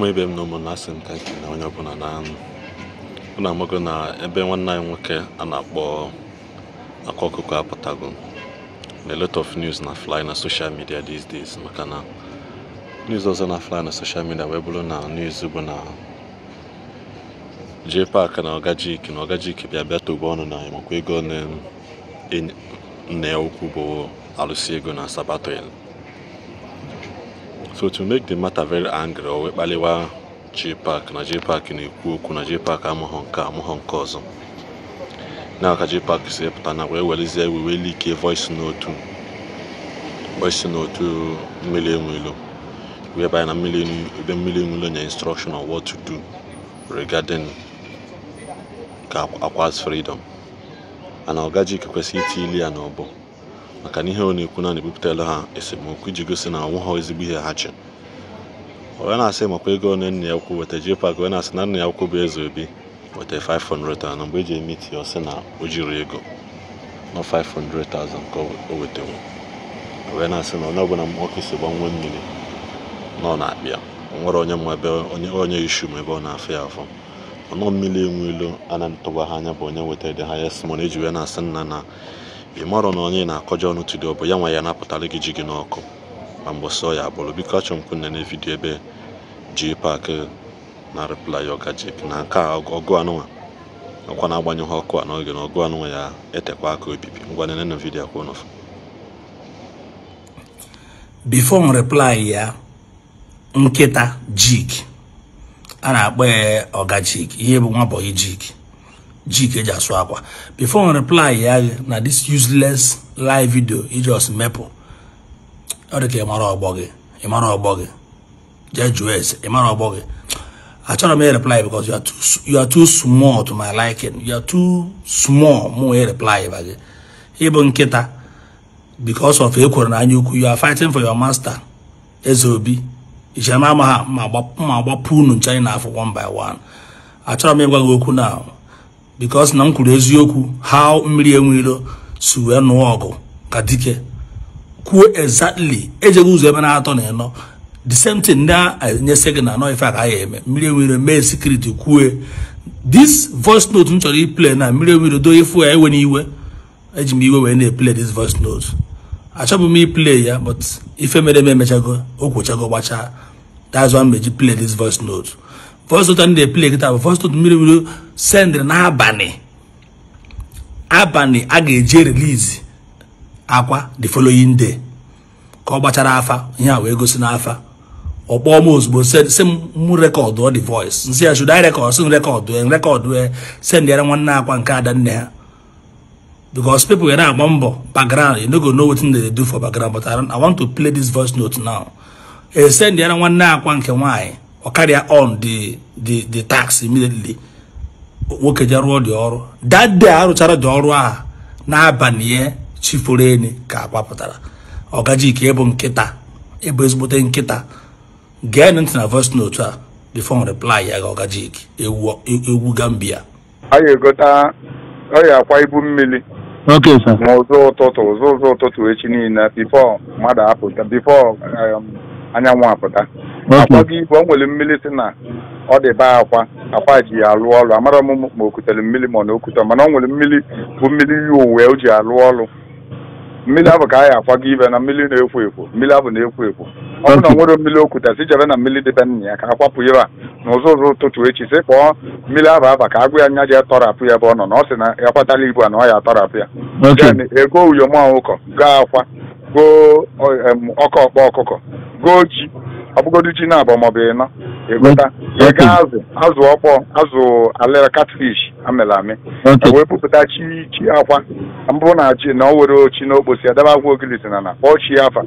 ụmụ ibe m na asị m na onye ọbụla na anụ ụnụ amago na ebe nwanne anyị nwoke a na-akpọ akwa ọkụkọ apụtago na lot of news na fly na social media these days maka na news ọzọ na fly na social media wee bụrụ na news bụ na jee pak na ọgajik na ọgajik bịa bịa togbo ọnụ na makwa ego nne ukwu bụ alụsị ego na sabato so to make the matter very angry o wee kpaliwa JPAC na JPAC na-ekwu okwu na JPAC amụghọ nke amụghọ nke ọzọ na ka JPAC si pụta na wee welizie iwe wee like voice note voice note mmiri enwelo whereby na ebe mmiri enwelo nye instruction on what to do regarding ka akwa's freedom ana ọgaji kwesịrị iti ili ya n'ọbọ maka na ihe ọ na-ekwu na na-ebupụtara ha esemokwu iji gosi na ọ ha ezigbo ihe ha chi. wee na-asị makwa ego one nna ya ukwu weta JPAC wee na-asị na nna ya ukwu bụ eze obi weta 500,000 na mgbe eji eme iti ọ sị na o jiri ego nọ 500,000 nke o wetewo wee na-asị na onye ọbụla nwoke si gbanwe mmiri ọ na-akpịa nwere onye mma ebe onye ishu ma ebe ọ na-afụ ya afọ ọnọ mmiri enwe ilu ana na ha anya bụ onye wetara dị ha ya simon e eji wee na-asị nna na ị marọ na onye na akọjọ ọnụ tudio bụ ya nwa ya napụtara gị ji gị n'ọkụ ma mgbe sọ ya agbụrụ biko achọ m kwunne na vidiyo ebe ji pak na replay ọgajik na nke a ọgụ anụnwa ọkwa na-agbanyụghị ọkụ a n'oge na ọgụ anụnwa ya etekwa aka obibi ngwa nene na vidiyo akwa before m reply ya nkịta jik a na-akpọ ya ọgajik ihe bụ nwa bọyị jik jike ji asụ akwa before reply ya na this useless live video i just mepụ ọ dị ka ịmara ọgbọ gị ịmara ọgbọ gị jee jụọ ese ịmara ọgbọ gị achọrọ m reply because you are too small to my liking you are too small mụ wee reply ba gị ịbụ nkịta because of ekwere na anya you are fighting for your master eze obi ichere ma ama ha ma agbapụ unu ncha anyị na afọ one by one achọrọ m ịgwa gị okwu na because na m kwuru eziokwu how mmiri enweilo si wee nụọ ọgụ ka dike kwuo exactly ejeghị ụzọ ebe na-atọ na ịnọ the same thing na-enyesị gị na anọ ife a ka ya eme mmiri enweilo mee sekuriti kwue this voice note m chọrọ iple na mmiri enweilo do ifu ya ewe n'iwe eji m iwe wee na-eple this voice note achọbụ m iple ya but ife mere eme emechago o kwochago gbachaa that's why m eji play this voice note fọstụtụ ndị play kịta bụ fọstụtụ mmiri mmiri sendịrị n'abalị abalị a ga-eji release akwa the following day ka ọ gbachara afa ihe a wee gosi n'afa ọ kpọọ m ozugbo si m rekọdụ the voice nsị ya should I record si m rekọdụ rekọdụ sendịara nwanne akwa nke ada nne ha because people were na-agba mbọ background you no go know wetin they dey do for background but I want to play this voice note now e eh, sendịara nwanne akwa nke nwaanyị or carry on the the the tax immediately nwoke je rụọ dị ọrụ that day arụchara dị ọrụ a n'abalị ya chifuru ka agbapụtara ọgaji ka ịbụ nkịta ịbụ ezigbote nkịta gee ntị na voice note a the reply ya ga ọgajik egwu gambia a ya akwa okay sir ụzọ before apụta before um, anyanwụ apụta akwa gị igwe o nwere mmiri si na ọ dị be akwa akwa ji ya alụ ọrụ amara m ma o mmiri ma ọ na okute mana o nwere mmiri bụ mmiri yi uwe o ji alụ ọrụ mmiri abụ ka anyị akwago ibe na mmiri na-ekwo ekwo mmiri abụ na-ekwo ekwo ọ bụ na nwere mmiri okwute si jebe na mmiri dịbe nna ya ka a kwapụ ya na ụzọ ụtụtụ echi sị kpọọ mmiri abụ aba ka agụ ya nya ji atọrapụ ya ebe ọ nọ na ọ sị na ya kwatala ibu a na ọ ya atọrapụ ya ego uyom ụkọ goo akwa goo ọkọ ọkpa ọkụkọ goo ji ọbụgodu ji na-abụ maọbụ ịnọ ịgụta ịga azụ azụ ọkpọ azụ alịra catfish amịrị amị e wee bupụta chi chi akwa mbụ na ji na ọ were ochi n'okposi okposi adaba agwa ogilisi na na kpọọ chi afa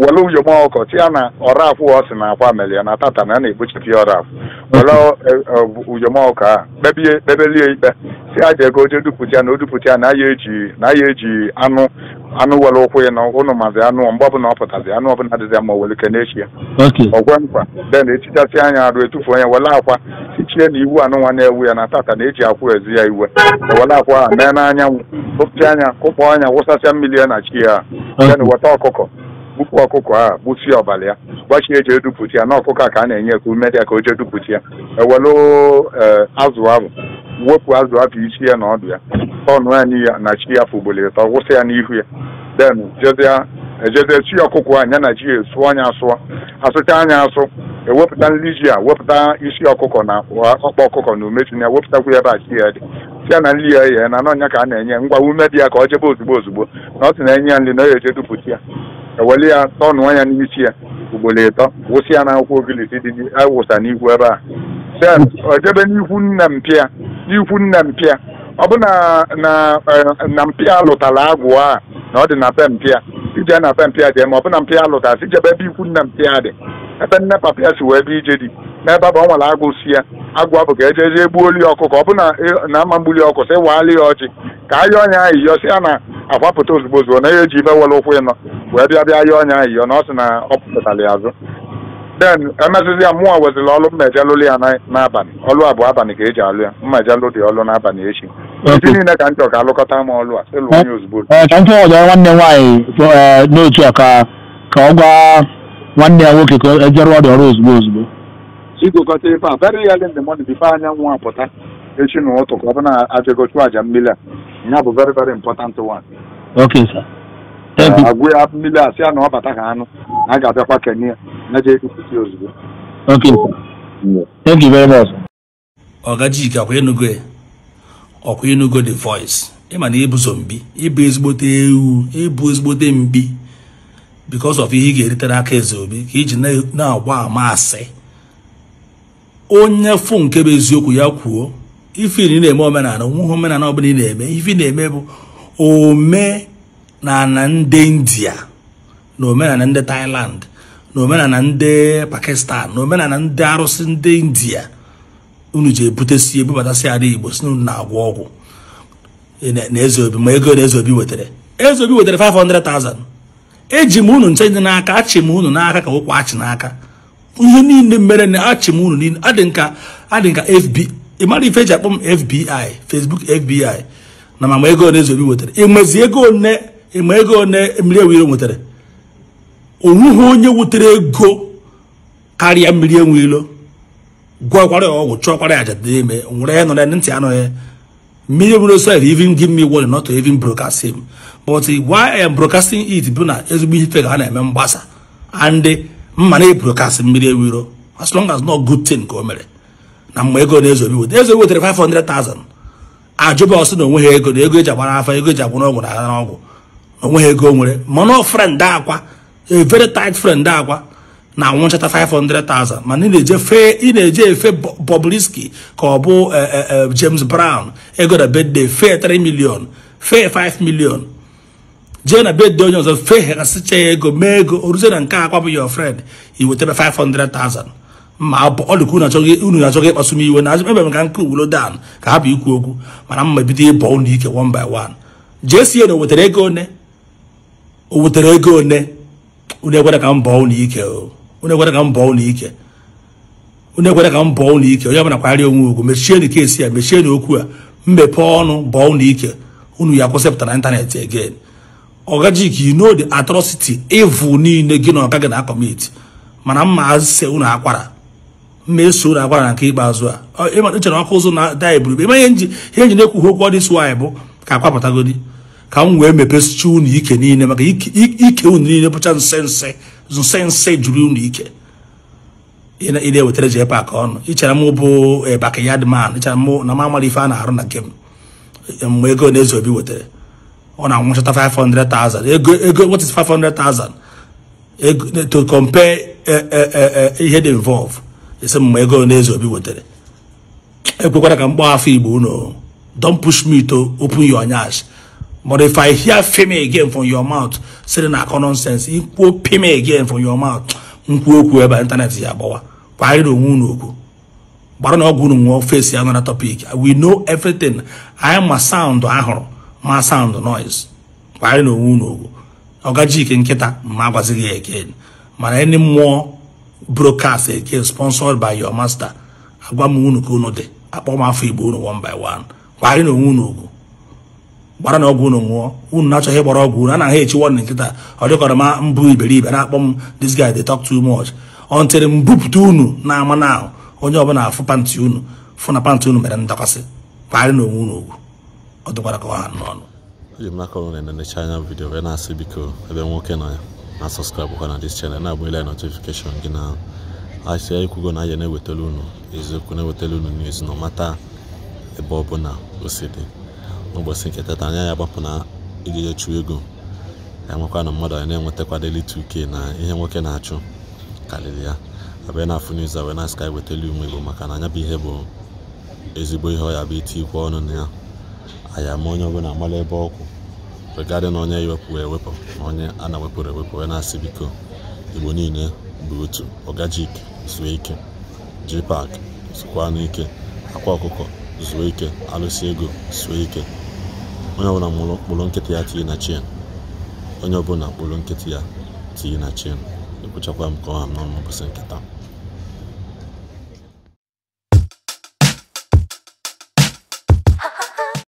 were uyom ọkọ tia na ọra akwụ ọ na akwa mere ya na tata na a na-egbochipụ ya ọra akwụ were uyom ọkọ a kpebelie ikpe si aja ego oje dupụta na o dupụta na ya eji na ya eji anụ anụ were ụkwụ ya na ụnụ mazi anụ mgbe ọbụla ọ pụtazi anụ ọbụla adịzi ma were ike echi ya ọgwe mkpa den etichasị anya arụ etufu onye wele akwa sichie na iwu anụ nwa na-ewu ya na tata na eji akwụ ezi ya iwe wele akwa mee n'anyanwụ kụpụta anya kụkpọ anya wụsasịa mmiri ya na chi ya den weta ọkụkọ gbupụ ọkụkọ a gbụsie ọbalị ya gbachie eji dupụta ya na ọkụkọ a ka a na-enye ka umedia ka o jee dupụta ya ewelu e, azụ ahụ wepụ azụ ahụ isi ya na ọdụ ya tọnụ ya n'iya na chi ya fụgbolo ịtọ wụsị ya n'ihu ya den ejede e chi ọkụkọ a nya na ji sụọ anya asụọ asụcha anya asụ ewepụta nri ji a wepụta isi ọkụkọ na ọkpa ọkụkọ na ume tinye wepụtakwu ebe a chi ya dị ya na nri ya ya na n'ọnya ka a na-enye ngwa ume dị ya ka ọ jebe ozugbo ozugbo na ọ sị na enye ya nri na ọ ya eje dupụta ya eweli ya tọnụọ ya n'isi ya ugboro ịtọ wụsị ya n'akwụkwọ ogilisi dị awụsa n'ihu ebe a sen ojebe e, n'ihu nna mpịa n'ihu nna mpịa ọ bụ na na e, mpịa lụtara agwụ a na ọ dị na pe mpịa ije na mpịa dị ma ọ bụ e, na mpịa lụtasị ijebe ebe ikwu nna mpịa dị ebe nne papịa si wee ebe ije dị n'ebe ọ nwere agụ si ya agụ bụ ka ejeje gbuo oli ọkụkọ ọ bụ na ama mgbuli ọkụ sị waa ya ọchị ka ayọ ọnya ayịyọ si ya na akwapụta ozugbo ozugbo na ya eji mewere ụkwụ ịnọ wee bịa bịa ya ọnya ahụ na ọ sị na ọ pụtara ya azụ den emezụzi ya mụnwa weziri ọlụ mma eje lụrụ ya n'abalị ọlụ abụọ abalị ka eji alụ ya mma eje lụ dị ọlụ n'abalị echi ndị niile ka m chọrọ ka alụkọta m ọlụ a ịlụ onye ozugbo eh, eh, ka m chọrọ ọjọrọ nwanne nwaanyị eh, n'otu ka ka ọ gwa nwanne ya nwoke ka ejere ọdị ọrụ ozugbo ozugbo igokọta ebe a very early in the morning before anyanwụ apụta echi n'ụtụ ka ọ bụ na ajego chụọ mmiri a ihe bụ very very important one okay sir agwụ ya mmiri asị ya na ọ bata ka anụ na a ga-abịakwa kenya na je ekwupụta ozugbo okay thank you very much ọgajike akwa enugo ọkwa enugo the voice ị e ma na ịbụzo e mbi ịbụ e ezigbote ewu ịbụ ezigbote mbi because of ihe ị ga-eritere aka eze obi ka iji na agwa ama asị onye fụ nke bụ eziokwu ya kwuo ife ị na-eme omenala nweghị omenala ọ bụla ị na-eme ife na-eme bụ omenala ndị india na omenala ndị thailand na omenala ndị pakistan na omenala ndị arụsị ndị india unu ji ebutesi ebubatasị ala igbo si unu na-agwọ ọgwụ na eze obi ma ego na eze obi wetara eze obi wetara 500,000 eji m unu nche dị n'aka achị m unu n'aka ka ụkwụ achị n'aka ihe niile mere na achị m unu niile adị nka adị nka fb ị ife eji akpọ m fbi facebook fbi na ma ego one ezobi nwetara ịmezi ego one ịma ego one mmiri ewu iro nwetara onwughị onye wutere ego karịa mmiri enwu ilo gwọkwara ya ọgwụ chọkwara ya ajadị ime nwere ya nọrọ ntị anọ ya mmiri ewu iro sef even give me word not to even broadcast him but why am broadcasting it bụ na ezigbo ife ka ha na-eme mgbasa and mma na broadcast mmiri ewu iro as long as not good thing ka o mere na mgbe ego na-ezobi weta ezobi wetere 500,000 ajụba na onwe ha ego na ego eji agbara afa ego eji agbara ọgwụ na agha n'ọgwụ na onwe ha ego nwere mana friend akwa a very tight friend akwa na anwụnchata 500,000 mana ị na-eje fe ị na-eje efe Bobrisky ka ọ bụ eh, eh, eh, James Brown ego na bedde fe 3 million fe 5 million jee na bedde onye ọzọ fe ha ego mee ego oruzie na nke akwa bụ your friend i wetebe 500,000 ma ọ dịka unu na-achọghị ịkpasu m iwe na ebe m ka nke uwuro dan ka ha bụ ikwu okwu mana mma bido ịbọ ụlọ ike one by one JCN o wetara ego one o wetara ego one unu ekwere ka m bọọ ụlọ ike unu ekwere ka m bọọ ụlọ ike unu ekwere ka m bọọ ụlọ ike onye ọbụla kwagharịa onwe ugwu mechienụ kesi ya mechienụ okwu a mmepe ọnụ bọọ ụlọ ike unu ya kwụsịpụta na ịntanetị again ọgajik you no the atrocity evil niile gị na ọka gị na akọmiti mana mma ase unu akwara ma eso na agwara na nke ikpeazụ a echere ọkụ ụzọ na da eburu ihe nji ihe nji na-ekwughị okwu ọdịs waanyị bụ ka akwapụtagodi ka m wee mepesicha unu ike niile maka ike unu niile bụcha nse nse juru unu ike ị na-ewetara ji pak ọnụ ịchara m bụ eh, bakayad man ichara m na m amara ife a na-arụ na nke eh, mgbe ego na eze obi wetara ọ na-anwụchata 500,000 ego ego what to compare eh, ihe dị involved. esi mma ego na obi wetara ekwekwara ka m kpọọ afọ igbo unu don't push me to open your nyash but if i hear fame again from your mouth sịrị na akọ nonsense kwuo fame again from your mouth nkwuo okwu ebe intanet ya agbawa kwarịrị onwe unu okwu gbara na ọgwụ unu nwụọ fesi ya nara topic we know everything anyị ma sound ahụrụ ma sound noise kwarịrị onwe unu okwu ọgaji ike nkịta ma agwazighị ya again mana ndị mmụọ broadcast again sponsored by your master agwa m unu ka unu dị akpọ m afọ igbo one by one kparị na onwe unu ugwu gbara na ọgwụ unu nwụọ unu na-achọghị ịgbara ọgwụ unu anaghị echi wọdịn nkịta ọ dịkọrọ ma mbụ iberibe na-akpọ m this guy dey talk too much until m bupụta unu na-ama na ahụ onye ọbụla afụ pantị unu fụ na pantị unu mere ndakwasị kparị na onwe ogu ugwu ọ dịkwara ka ọha n'ọnụ eji m n'aka ụlọ na-enecha anya vidiyo wee na-asị biko ebe nwoke nọ ya na sọskraịbụkwa na dis chanel na-agba notifikeshọn gị na asịa ikwugo na anyị na-ewetara unu eziokwu na-ewetara unu news na mata ebe ọ bụla o si dị n'ụbọchị nke tata anya ya agbapụ na ijije chụọ ego ya nwekwa na mmadụ na-enwetakwadeli 2k na ihe nwoke na-achụ karịrị ya abịa na-afụ news a wee na sky wetara ume ego maka na anya bụ ihe bụ ezigbo ihe ọ ya bụ iti ikwe ọnụ na ya anyị ama onye bụla mara ebe ọkụ. regarding onye ewepụ ewepụ na onye a na-ewepụrụ ewepụ onye na-asị biko igbo niile bụ otu ọgajik zuo ike pak zukwa n'ike akwa ọkụkọ zuo ike alụsi ego zuo ike onye ọbụla kpụrụ nkịtị ya tinye na chien onye ọbụla mkpụrụ nkịtị ya tinye na chien ekwuchakwa m ka ọha m n'ọnụ nkịta